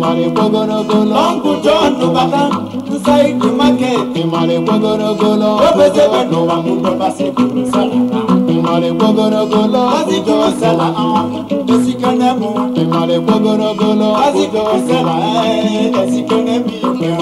ịmara ekpogorogolo ọnkụ John tụbata nsaidi market ịmara ekpogorogolo obezebe n'ụwa mụdọbasịbụrụ sara ịmara ekpogorogolo azịjọ sara esikene mụ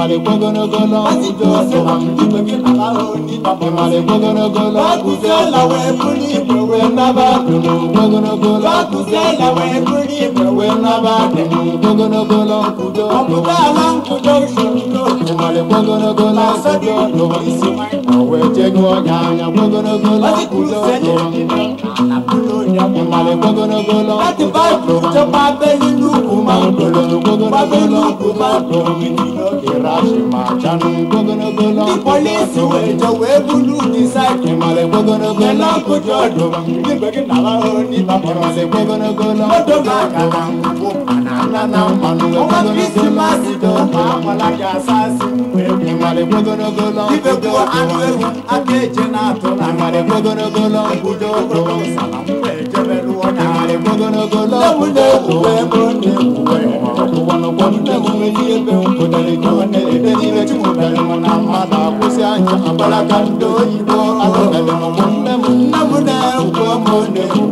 ịmara ekwe ogologo ọla ịmara ekwe ogologo ọla nkwudo wee jegụ anya ịmara The police were the way blue decide him ale gbogonogbo na kojú ọdún nígbèkí nàlá òní bàbọ̀rọ̀ lè gbogonogbo lọ. Mọ́tò máa ọtụtụ emume dị ebe m pụtara ego na-ede n'ime chụpụtara m na mmadụ akwụsị anya agbara ka ndị oyibo alụbeghị m nne m nne m na-ekwu m